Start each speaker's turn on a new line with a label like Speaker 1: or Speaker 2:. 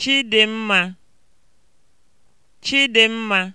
Speaker 1: Chidimma. Chidimma.